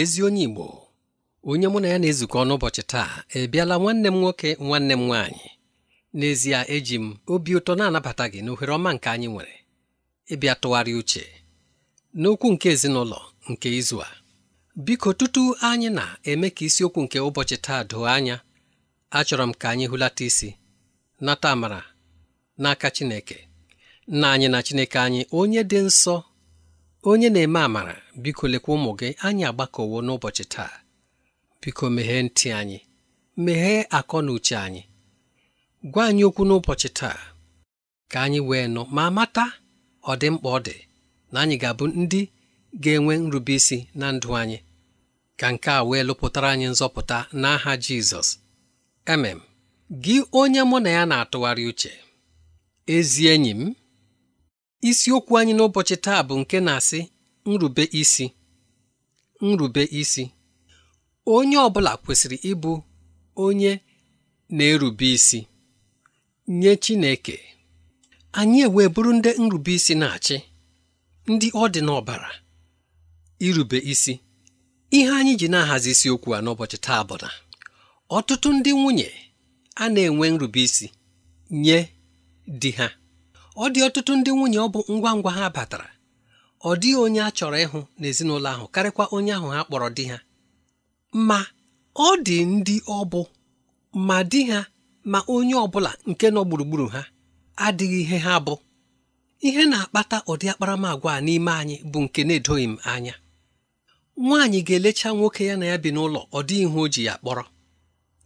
ezi onye Igbo onye mụ na ya na-ezukọ n'ụbọchị taa ebiala nwanne m nwoke nwanne m nwaanyị n'ezie eji m obi ụtọ na-anabata gị n'ohere ọma nke anyị nwere ịbịa tụgharị uche n'okwu nke ezinụlọ nke izu a biko tutu anyị na-eme ka isiokwu nke ụbọchị taa doo anya achọrọ m ka anyị hụlata isi nata amara n'aka Chineke nna anyị na Chineke anyị onye dị nsọ onye na-eme amara biko lekwa ụmụ gị anyị agbakọwo n'ụbọchị taa biko meghee ntị anyị meghee akọ na uche anyị gwa anyị okwu n'ụbọchị taa ka anyị wee nụ ma mata ọ dị mkpa ọ dị na anyị ga-abụ ndị ga-enwe nrube isi na ndụ anyị ka nke a wee lụpụtara anyị nzọpụta n'aha Jizọs emem gị onye mụ na ya na-atụgharị uche ezi enyi m isiokwu anyị n'ụbọchị taa bụ nke na-asị nrube isi nrube isi onye ọ bụla kwesịrị ịbụ onye na-erube isi nye Chineke anyị ewee bụrụ ndị nrube isi na-achị ndị ọ dị n'ọbara irube isi ihe anyị ji na-ahazi isiokwu a n'ụbọchị taa bụ na ọtụtụ ndị nwunye a na-enwe nrube isi nye di ha ọ dị ọtụtụ ndị nwunye ọ bụ ngwa ngwa ha batara ọ dịghị onye a chọrọ ịhụ n'ezinụlọ ahụ karịkwa onye ahụ ha kpọrọ di ha ma ọ dị ndị ọ bụ ma di ha ma onye ọ bụla nke nọ gburugburu ha adịghị ihe ha bụ ihe na-akpata ụdị akparamagwa a n'ime anyị bụ nke na-edoghị m anya nwaanyị ga-elecha nwoke ya na ya bi n'ụlọ ọ dịghị ihe o ji ya kpọrọ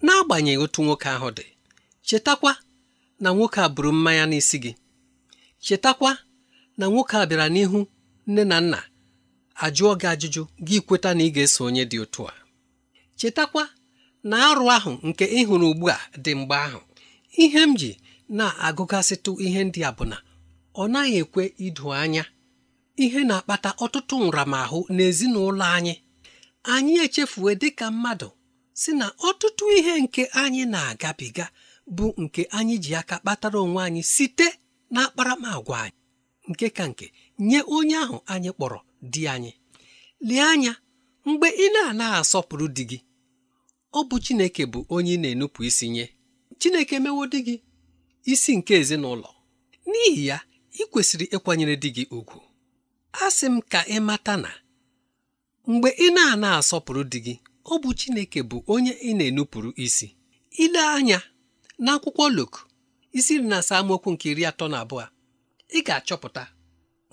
n'agbanyeghị otu nwoke ahụ dị chetakwa na nwoke a buru mmanya n'isi gị chetakwa na nwoke a bịara n'ihu nne na nna ajụọ gị ajụjụ gị kweta na ị ga-eso onye dị otu a chetakwa na arụ ahụ nke ịhụrụ ugbu a dị mgbe ahụ ihe m ji na-agụgasịtụ ihe ndị a bụ na ọ naghị ekwe ido anya ihe na-akpata ọtụtụ nramahụ n'ezinụlọ anyị anyị echefue dịka mmadụ si na ọtụtụ ihe nke anyị na-agabiga bụ nke anyị ji aka kpatara onwe anyị site na anyị nke ka nke nye onye ahụ anyị kpọrọ di anyị lee anya mgbe ị na ana asọpụrụ di gị ọ bụ Chineke bụ onye ị na-enupụ isi nye Chineke emewo di gị isi nke ezinụlọ n'ihi ya ị kwesịrị ịkwanyere di gị ugwu a sị m ka ị mata na mgbe ị na-ana asọpụrụ di gị ọ bụ Chineke bụ onye ị na-enupụrụ isi ile anya n'akwụkwọ Luk isi nri na asaa mokwu nke iri atọ na abụọ ị ga-achọpụta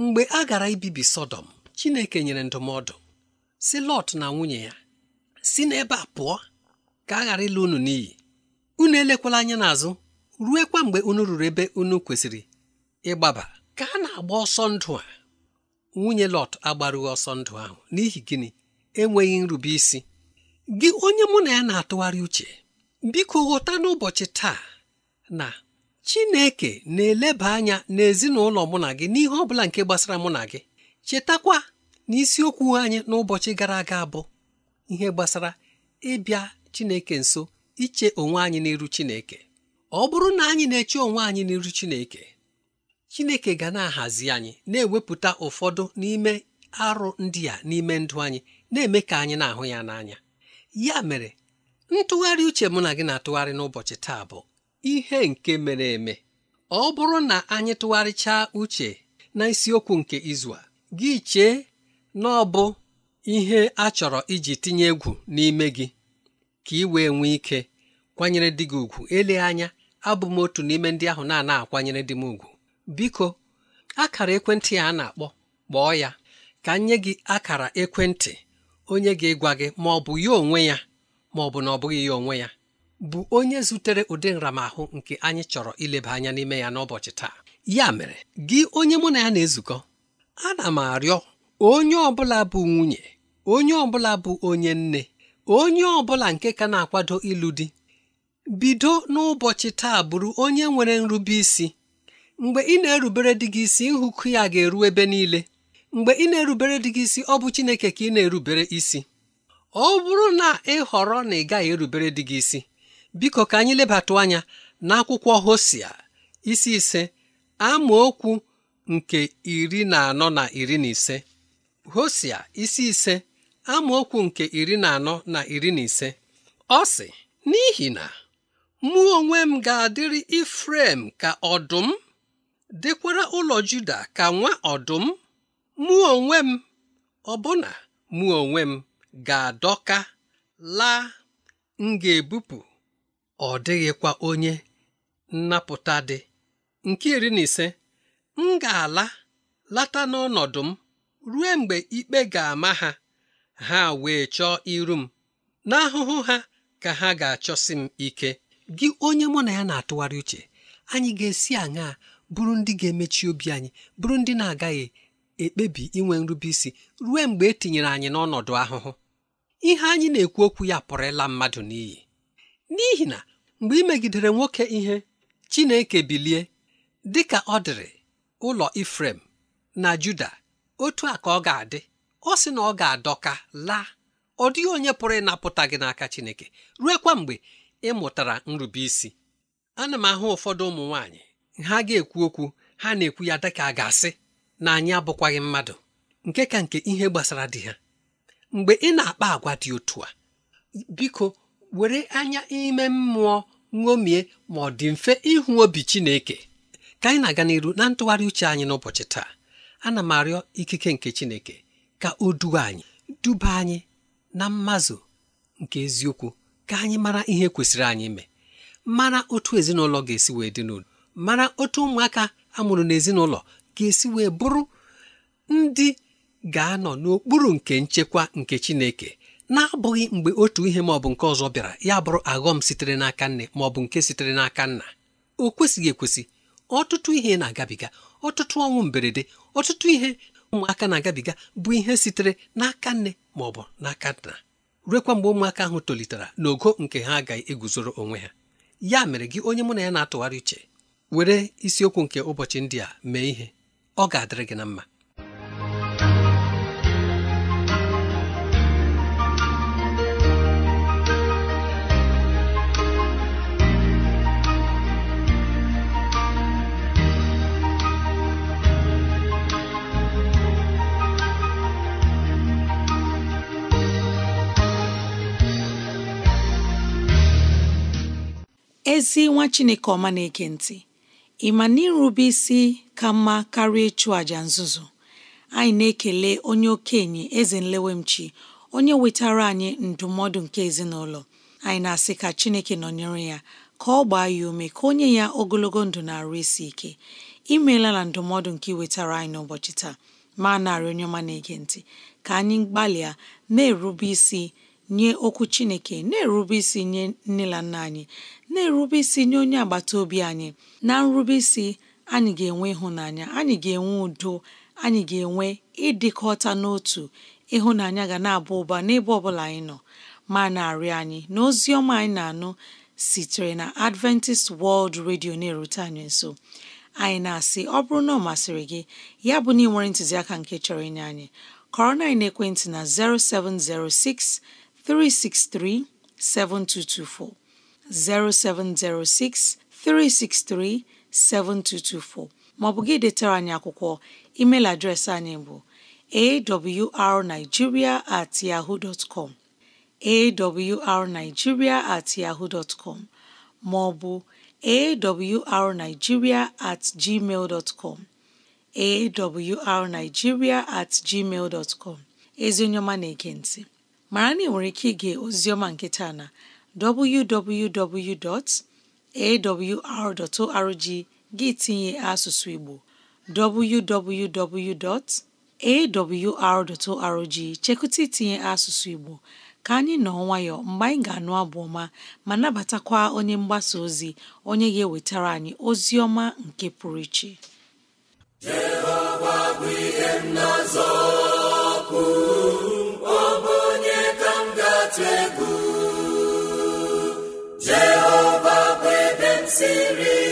mgbe a gara ibibi Sọdọm Chineke nyere ndụmọdụ si Lọt na nwunye ya si n'ebe a pụọ ka a ghara ịlụ unu n'iyi unu elekwala anya ruo ruekwa mgbe unu ruru ebe unu kwesịrị ịgbaba ka a na-agba ọsọ ndụ a nwunye Lọt agbarughị ọsọ ndụ ahụ n'ihi gịnị enweghị nrube isi gị onye mụ na ya na-atụgharị uche biko ghọta n'ụbọchị taa na Chineke na-eleba anya n'ezinụlọ mụ na gị n'ihe ọ bụla nke gbasara mụ na gị chetakwa na isiokwu anyị n'ụbọchị gara aga bụ ihe gbasara ịbịa Chineke nso iche onwe anyị n'iru Chineke ọ bụrụ na anyị na-eche onwe anyị n'iru Chineke Chineke ga na-ahazi anyị na-ewepụta ụfọdụ n'ime arụ ndị a n'ime ndụ anyị na-eme ka anyị na-ahụ ya n'anya ya mere ntụgharị uche mụ na gị na-atụgharị n'ụbọchị taa bụ ihe nke mere eme ọ bụrụ na anyị tụgharịchaa uche na isiokwu nke izu a gị chee na ọ bụ ihe a chọrọ iji tinye egwu n'ime gị ka ị wee nwee ike kwanyere di gị ugwu ele anya abụ m otu n'ime ndị ahụ na-ana akwanyere di m ugwu biko akara ekwentị a na-akpọ kpọọ ya ka nye gị akara ekwentị onye ga ịgwa gị ma ọ bụ ya onwe ya ma ọ bụ na ọ bụghị ya onwe ya bụ onye zutere ụdị nramahụ nke anyị chọrọ ileba anya n'ime ya n'ụbọchị taa ya mere gị onye mụ na ya na-ezukọ ana m arịọ onye ọbụla bụ nwunye onye ọbụla bụ onye nne onye ọbụla nke ka na-akwado ịlụ di bido n'ụbọchị taa bụrụ onye nwere nrube isi mgbe ị na-erubere di gị isi nhụkụ ya ga-eru ebe niile mgbe ị na-erubere di gị isi ọ bụ Chineke ka ị na-erubere isi ọ bụrụ na ị họrọ na ị gaghị erubere di gị isi biko ka anyị lebatụ anya n'akwụkwọ hosia isi ise amaokwu nke iri na anọ na iri na ise hosia isi ise amaokwu nke iri na anọ na iri na ise ọ sị n'ihi na mụ onwe m ga-adịrị Ifrem ka ọdụm dịkwara ụlọ Juda ka nwa ọdụm mụ onwe m ọbụna mụ onwe m ga-adọka laa m ga-ebupụ ọ dịghịkwa onye nnapụta dị nke iri na ise m ga-ala lata n'ọnọdụ m ruo mgbe ikpe ga-ama ha ha wee chọọ iru m n'ahụhụ ha ka ha ga-achọsi m ike gị onye mụ na ya na-atụgharị uche anyị ga-esi aṅaa bụrụ ndị ga-emechi obi anyị bụrụ ndị na-agaghị ekpebi inwe nrube isi ruo mgbe etinyere anyị n'ọnọdụ ahụhụ ihe anyị na-ekwu okwu ya pụrụ ịla mmadụ n'iyi n'ihi na mgbe ị megidere nwoke ihe Chineke bilie dị ka ọ dịrị ụlọ Ifrem na Juda otu a ka ọ ga-adị ọ sị na ọ ga-adọka laa ọ dịghị onye pụrụ ịnapụta gị n'aka Chineke ruekwa mgbe ị mụtara nrube isi ana m ahụ ụfọdụ ụmụ nwaanyị ha ga-ekwu okwu ha na-ekwu ya dịka a ga-asị na anyị abụkwaghị mmadụ nke ka nke ihe gbasara di ha mgbe ị na-akpa agwa dị otu a biko were anya ime mmụọ ṅomie ma ọ dị mfe ịhụ obi Chineke ka anyị na-aga n'iru na ntụgharị uche anyị n'ụbọchị taa ana m arịọ ikike nke Chineke ka o duwe anyị duba anyị na mmazụ nke eziokwu ka anyị mara ihe kwesịrị anyị ime mara otu ezinụlọ ga-esi wee dị n'udo mara otu ụmụaka amụrụ n'ezinụlọ ga-esi wee bụrụ ndị ga-anọ n'okpuru nke nchekwa nke Chineke na-abụghị mgbe otu ihe maọbụ bụ nke ọzọ bịara ya bụrụ aghọm sitere n'aka nne ma ọ bụ nke sitere n'aka nna o kwesịghị ekwesị ọtụtụ ihe na-agabiga ọtụtụ ọnwụ mberede ọtụtụ ihe ụmụaka na-agabiga bụ ihe sitere n'aka nne ma ọ bụ n'aka nna ruekwa mgbe ụmụaka ahụ tolitere n'ogo nke ha agaghị eguzoro onwe ha ya mere gị onye mụ na ya na-atụgharị uche were isiokwu nke ụbọchị ndị a mee ihe ọ ga-adịrị gị na mma ezi nwa chineke ọma na-ege ntị ị ma na irube isi ka mma karịa ịchụ àjà nzuzu anyị na-ekele onye okenye eze nlewemchi onye wetara anyị ndụmọdụ nke ezinụlọ anyị na-asị ka chineke nọnyere ya ka ọ gbaa ya ume ka onye ya ogologo ndụ na-arụ isi ike imeela na ndụmọdụ nke iwetara anyị n'ụbọchị taa ma narị onye ọma na-ege ntị ka anyị gbalịa na-erube isi nye okwu chineke na-erube isi nye nne na nna anyị na-erube isi nye onye agbata obi anyị na nrube isi anyị ga-enwe ịhụnanya anyị ga-enwe udo anyị ga-enwe ịdịkọta n'otu ịhụnanya ga na-aba ụba n'ebe ọbụla anyị nọ ma na-arịọ anyị na ozi ọma anyị na-anụ sitere na Adventist World Radio na-erute anyị nso anyị na-asị ọ bụrụ na ọ masịrị gị ya bụ na ị nwere ntụziaka nke chọrọ inye anyị kọrọ na ekwentị na 0706 363 7224 0706 363 7224 maọbụ gị detara anyị akwụkwọ email adreesị anyị bụ awrnigeria at yahoo dot com awrnigeria at yahoo dot com maọbụ awrnigeria at gmail dot com awrnigeria at gmail dot com ezi onye ọma na-ege mara na ị nwere ike ige ozioma nke taa na www.awr.org gị tinye asụsụ Igbo www.awr.org chekụta itinye asụsụ Igbo ka anyị nọ nwayọ mgbe anyị ga-anụ abụ ọma ma nabatakwa onye mgbasa ozi onye ga-ewetara anyị ozi ọma nke pụrụ iche Jehova bụ ebe m siri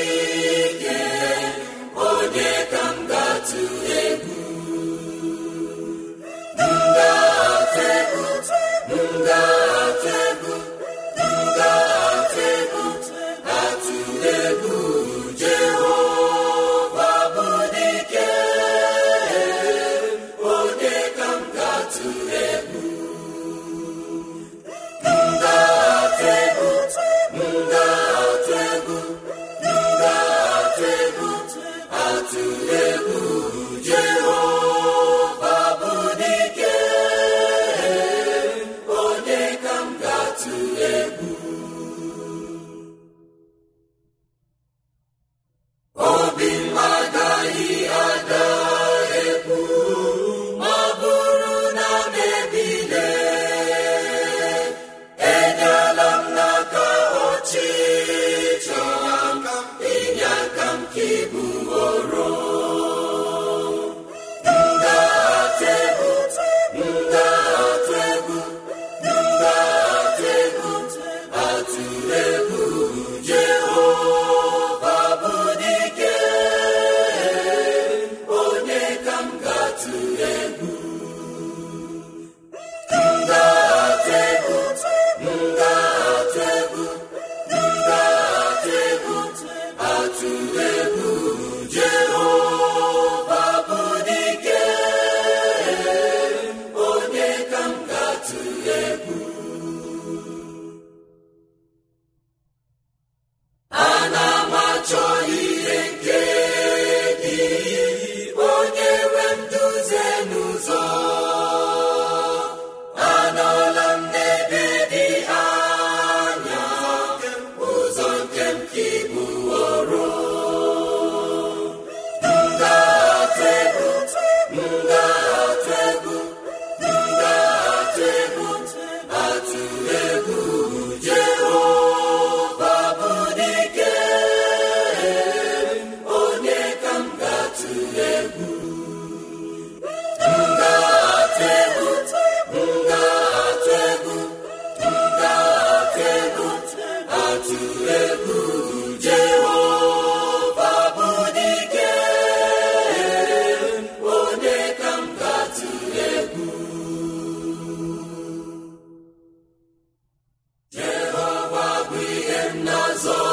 Ezo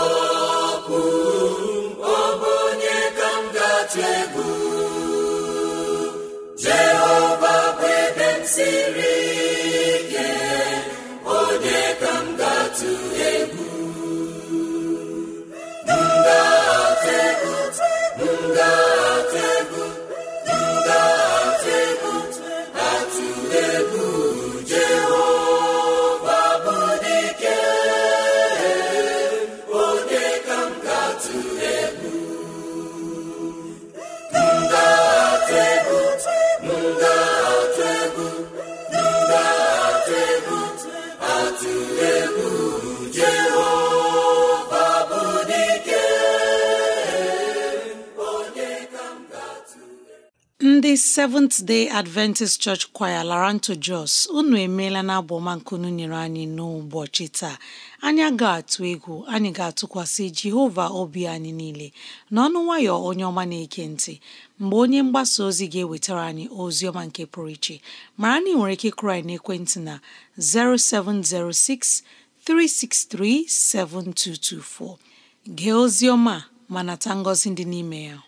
Seventh Day Adventist Church Choir Laranto Jos unu emeela na abụọma nkunu nyere anyị n'ụbọchị taa anyị ga-atụ egwu anyị ga-atụkwasị Jehova obi anyị niile n'ọnụ nwayọ onye ọma na-eke ntị mgbe onye mgbasa ozi ga-ewetara anyị ozi ọma nke pụrụ iche mara na ị nwere ike kụrụ anyị n'ekwentị na 0706 gee ozi ọma ma nata ngọzi dị n'ime ya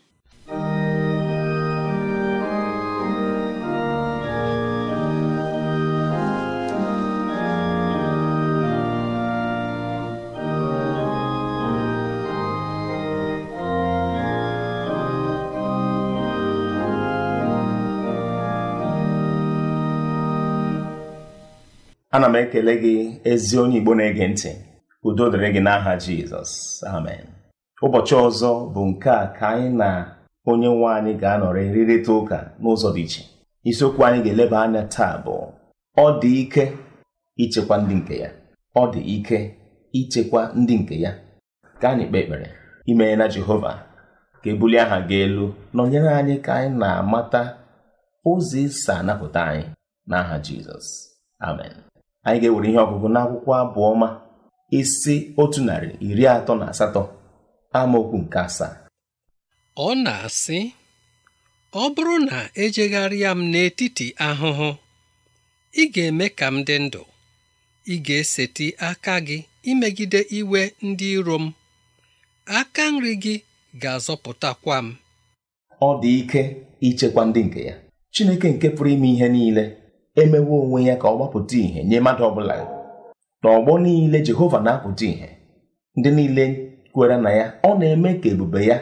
ana m ekele gị ezi onye igbo na-ege ntị udo dịrị gị n'aha jizọs amen ụbọchị ọzọ bụ nke a ka anyị na onye nwe anyị ga-anọrị rịrịta ụka n'ụzọ dị iche isiokwu anyị ga-eleba anya taa bụ ọ dị ike ichekwa ndị nke ya ọ dị ike ichekwa ndị nke ya ka anyị kpee ekpere imee na jehova ka ebulie aha gị elu nọnyere anyị ka anyị na-amata ụzọ isi anapụta anyị n'aha jizọs amen anyị ga-ewere ihe ọgụgụ n'akwụkwọ abụọ ọma isi otu narị iri atọ na asatọ amaokwu nke asaa ọ na-asị ọ bụrụ na ejegharịa m n'etiti ahụhụ ị ga-eme ka m dị ndụ ị ga-eseti aka gị imegide iwe ndị iro m aka nri gị ga-azọpụtakwa m ọ dị ike ichekwa ndị nke ya Chineke nke pụrụ ime ihe niile emewe onwe ya ka ọ gbapụta ìhè nye mmadụ ọbụla n'ọgbọ niile Jehova na-apụta ìhè ndị niile kwere na ya ọ na-eme ka ebube ya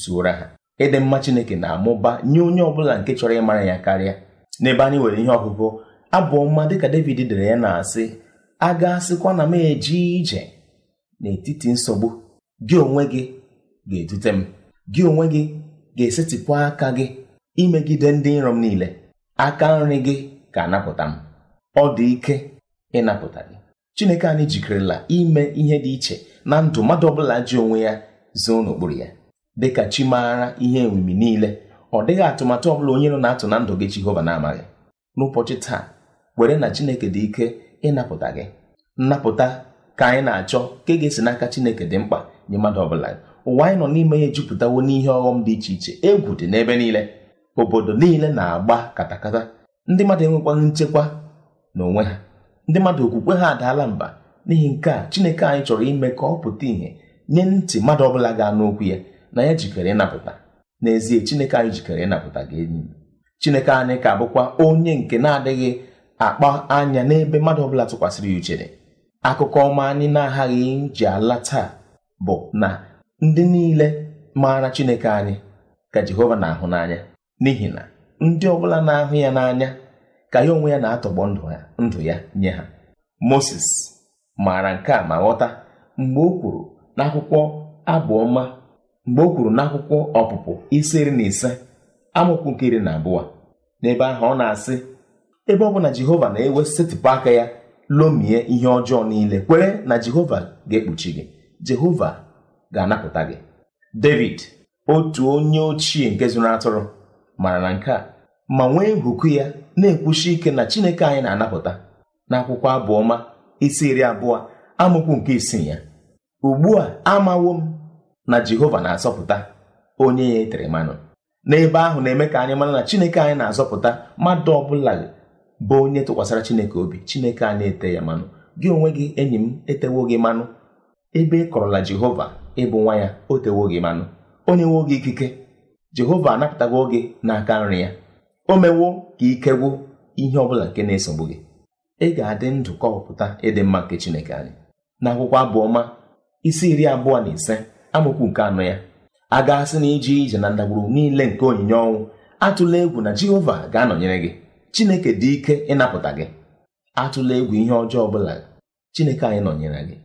zuora ha ịdị mma Chineke na-amụba nye onye ọbụla nke chọrọ ịmara ya karịa n'ebe anyị nwere ihe ọgụgụ mma dị dịka David dere ya na-asị a ga na m eji ije n'etiti nsogbu gị onwe gị ga-edute m gị onwe gị ga-esetịpụ aka gị imegide ndị nrọ m niile aka nri gị ga-anapụta m ọ dị ike ịnapụta gị chineke anyị jikerela ime ihe dị iche na ndụ mmadụ ọbụla ji onwe ya zoo n'okpuru ya dịka chi maara ihe emimi niile ọ dịghị atụmatụ ọbụla onye nọ na-atụ na ndụ gị jehova na-amaghị n'ụbọchị taa were na chineke dị ike ịnapụta gị nnapụta ka anyị na-achọ ka ege ga-esi n'aka chineke dị mkpa nye mmadụ ọbụla ụwa anyị nọ n'ime ya ejupụtawo n'ihe ọghọm dị iche iche egwu dị n'ebe niile obodo niile na-agba katakata ndị mmadụ enwekwaghị nchekwa na onwe ha ndị mmadụ okwukwe ha adaala mba n'ihi nke a chineke anyị chọrọ ime ka ọ pụta ìhè nye ntị mmadụ ọbụla ga-anụ okwu ya na ya jikere ịnapụta n'ezie chineke anyị jikere ịnapụta gị enyi chineke anyị ka bụkwa onye nke na-adịghị akpa anya n'ebe mmadụ ọbụla tụkwasịrị ya uchere akụkọ ọma anyị na-aghaghị ji ala taa bụ na ndị niile maara chineke anyị ka jehova na-ahụ n'anya n'ihi na ndị ọbụla na-ahụ ya n'anya ka ya onwe ya na-atọgbọ ndụ ya nye ha Moses maara nke a ma ghọta mgbe o kwuru n'akwụkwọ abụọma mgbe o kwuru n'akwụkwọ ọpụpụ isi iri na ise amụkwu nke iri na abụọ n'ebe ahụ ọ na-asị ebe ọ bụ na Jehova na-ewesetịpụ aka ya lomie ihe ọjọọ niile kwere na Jehova ga-ekpuchi gị Jehova ga-anapụta gị David otu onye ochie nke zụrụ atụrụ mara na nke a ma nwee nhụku ya na-ekwuchi ike na chineke anyị na-anapụta n'akwụkwọ abụọma isi iri abụọ amụkwu nke isii ya ugbu a amawo m na jehova na-azọpụta onye ya etere mmanụ n'ebe ahụ na-eme ka anyị mara na chineke anyị na-azọpụta mmadụ bụla bụ onye tụkwasịra chineke obi chineke anyị ete ya mmanụ gị onwe gị enyi m etewo gị mmanụ ebe ị kọrọla jehova ịbụ nwa ya o tewo gị mmanụ onye nwe gị ikike jehova anapụtago gị n'aka nri ya o mewo ka ike gwụ ihe ọbụla nke na-esogbu gị ị ga-adị ndụ pụta ịdị mma nke chineke anyị n'akwụkwọ abụọma isi iri abụọ na ise amụkwu nke anọ ya a gaasị na iji ije na ndagburu niile nke onyinye ọnwụ atụla egwu na jehova ga-anọnyere gị chineke dị ike ịnapụta gị atụla egwu ihe ọjọọ ọbụla chineke anyị nọnyere gị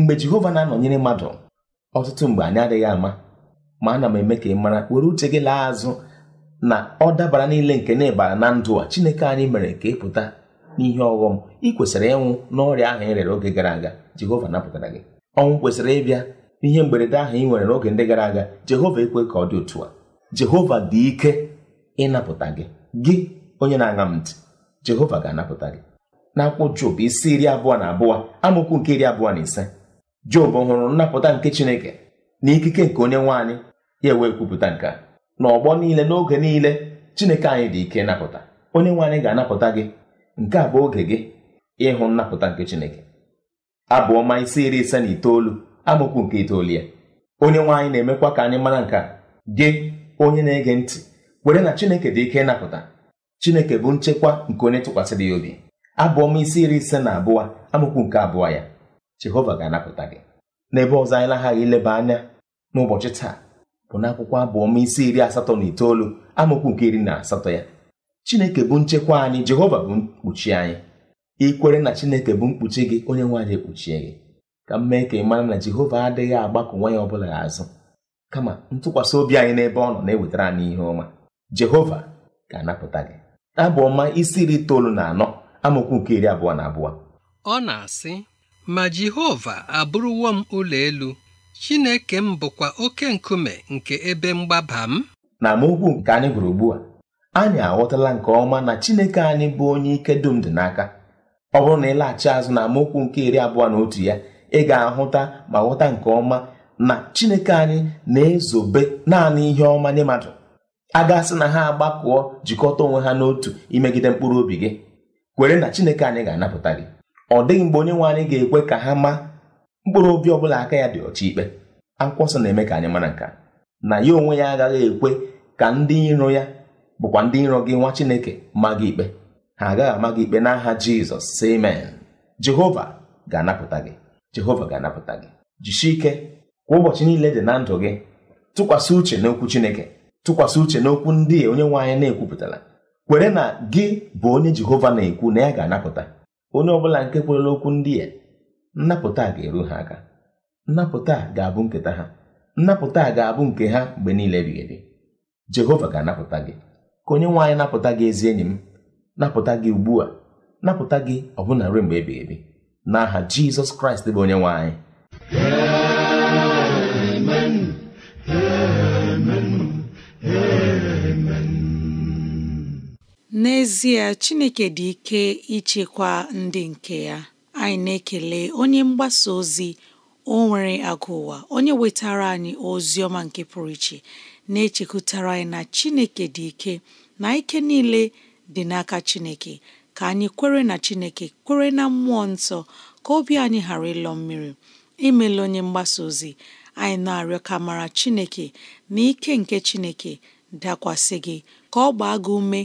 mgbe jehova na-anọnyere mmadụ ọtụtụ mgbe anyị adịghị ama ma ana m eme ka ị mara were uche gị laa azụ na ọ dabara niile nke na ịbara na ndụ a chineke anyị mere ka ị pụta n'ihe ọghọm ị kwesịrị ịnwụ n'ọrịa ahụ ị rere oge gara aga jehova napụtara gị ọnwụ kwesịrị ịbịa n'ihe mberede ahụ ị nwere n'oge ndị gara aga jehova ekwe ka ọ dị otu a jehova dị ike ịnapụta gị gị onye na-aṅa m ntị jehova ga-anapụta gị n'akwụkwọ Job isi iri abụọ na abụọ amaokwu nke iri abụọ na ise Job hụrụ nnapụta nke Chineke na ikike nke onye nwaanyị ya ewe kwupụta nke a n'ọgbọ niile n'oge niile Chineke anyị dị ike napụta onye nwaanyị ga-anapụta gị nke a bụ oge gị ịhụ nnapụta nke Chineke abụ ọma isi iri ise na itoolu amaokwu nke itoolu ya onye nwe na-emekwa ka anyị mara nke a gị onye na-ege ntị kwere na Chineke dị ike ịnapụta Chineke bụ nchekwa nke onye tụkwasịrị ya obi abụ ọma isi iri ise na abụọ amaokwu nke abụọ ya jehova ga-anapụta gị n'ebe ọzọ anyị naghaghị ileba anya n'ụbọchị taa bụ n'akwụkwọ abụọma isi iri asatọ na itoolu amaokwu nke iri na asatọ ya chineke bụ nchekwa anyị jehova bụ mkpuchi anyị ikwere na chineke bụ mkpuchi gị onye nwe ekpuchie gị ka m mee ka ị mara na jehova adịghị agbakọ nwa ya ọbụla azụ kama ntụkwasị obi anyị n'ebe ọ nọ na-ewetara anyị ihe ọma jehova ga-anapụta gị abụọma isi iri itoolu na anọ amaokwu nke iri abụọ na abụọ ọ na-asị ma Jehova abụrụwo m ụlọ elu Chineke m bụkwa oke nkume nke ebe mgbaba m na amaokwu nke anyị gụrụ ugbu a anyị aghọtala nke ọma na Chineke anyị bụ onye ike dum dị n'aka ọ bụrụ na ịlaghachi azụ na amaokwu nke iri abụọ na otu ya ị ga-ahụta ma ghọta nke ọma na Chineke anyị na-ezobe naanị ihe ọma nye mmadụ a gasị na ha agbakọọ jikọta onwe ha n'otu imegide mkpụrụ obi gị kwere na Chineke anyị ga-anapụta gị ọ dịghị mgbe onye nwe anyị ga-ekwe ka ha maa mkpụrụ obi ọbụla aka ya dị ọcha ikpe akwụkwọ nsọ na-eme ka anyị mara nka na ya onwe ya agaghị ekwe ka ndị iro ya bụkwa ndị iro gị nwa Chineke maa gị ikpe ha agaghị ama gị ikpe n'aha Jizọs si Jehova ga-anapụta gị Jehova ga-anapụta gị jisie ike kwa ụbọchị niile dị na ndụ gị tụkwasị uche n'okwu Chineke tụkwasị uche n'okwu ndị onye nwe anyị na-ekwupụtara kwere na gị bụ onye Jehova na-ekwu na ya ga-anapụta onye ọbụla nke kwerela okwu ndị a nnapụta ga-eru ha aka nnapụta ga-abụ nketa ha nnapụta ga-abụ nke ha mgbe niile ebighị ebi jehova ga-anapụta gị ka onye nwe napụta gị ezi enyi m napụta gị ugbu a napụta gị ọbụna ruo mgbe ebighị ebi n'aha jizọs kraịst bụ onye nwe N'ezie, Chineke dị ike ichekwa ndị nke ya. Anyị na-ekele onye mgbasa ozi o nwere agụụwa onye wetara anyị ozi ọma nke pụrụ iche na-echekwutara anyị na Chineke dị ike na ike niile dị n'aka Chineke ka anyị kwere na Chineke kwere na mmụọ nsọ ka obi anyị ghara ịlọ mmiri imela onye mgbasa ozi anyị na-arịọ ka mara Chineke na ike nke Chineke dakwasị gị ka ọ gbaa gị ume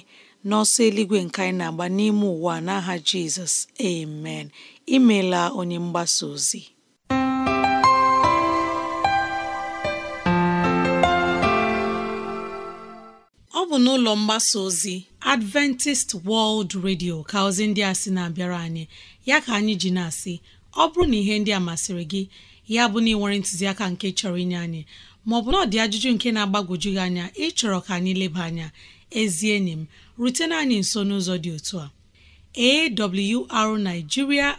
n'ọsọ eluigwe nke anyị na-agba n'ime ụwa n'aha Jizọs amen imela onye mgbasa ozi ọ bụ n'ụlọ mgbasa ozi Adventist World Radio ka ozi ndị a sị na-abịara anyị ya ka anyị ji na-asị ọ bụrụ na ihe ndị a masịrị gị ya bụ na ị ntụziaka nke chọrọ inye anyị maọbụ na ọ dị ajụjụ nke na-agbagwoju gị anya ịchọrọ ka anyị leba anya ezi enyi m rutena anyị nso n'ụzọ dị otu a awrnigeria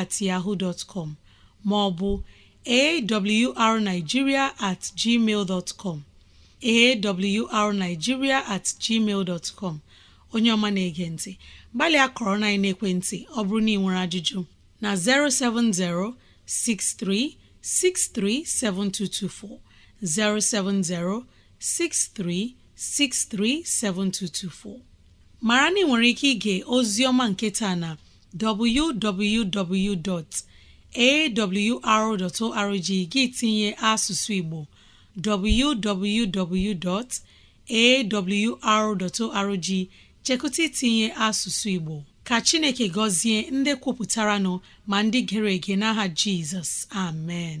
at at ma ọ bụ at gmail dot com at gmail onye ọma na-ege ntị gbalịa kọrọ na ekwentị ọ bụrụ na ị nwere ajụjụ na 070 63 7224 07063637224 mara na ị nwere ike ige ozioma nketa na www.awr.org gị tinye asụsụ Igbo www.awr.org chekụta itinye asụsụ Igbo ka Chineke gọzie ndị kwupụtara nọ ma ndị gere ege n'aha Jizọs amen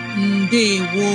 ndewo